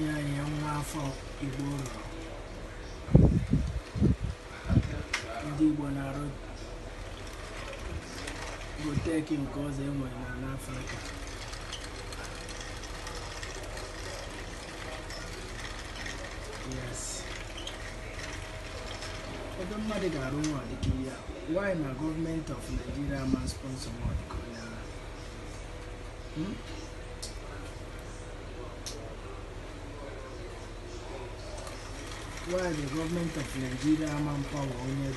nyanye nwa afọ igbo rụrụ ndị igbo na-arụ goteki nke ọzọ enwere na n'afrịka yes ebe mmadụ ga-arụ nwa dịka ya why na gọọmenti of nigeria ma sponsor nwa dịka why the government of Nigeria manpower only onye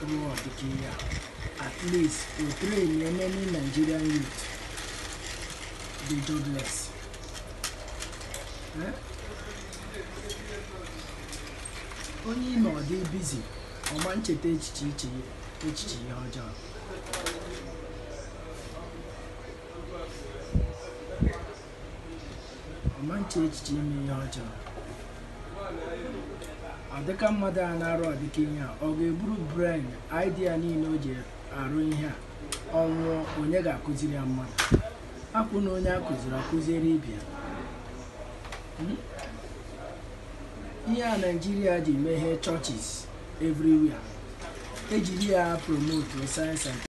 ruo ọtụtụ Kenya? at least to train many Nigerian youth dị jobless eh? onye ị nọ dị bizi ọma ncheta echiche echiche ihe ọjọọ ọma ncheta echiche ime ihe ọjọọ adịka mmadụ a na-arụ adịka ihe a ọ ga-eburu brain idea niile o ji arụ ihe a ọnwụọ onye ga-akụziri ya mmadụ hapụ na onye akụziri akụziri ibe hmm? ihe a naijiria ji meghee churches everywhere ejiri ya promote sayensị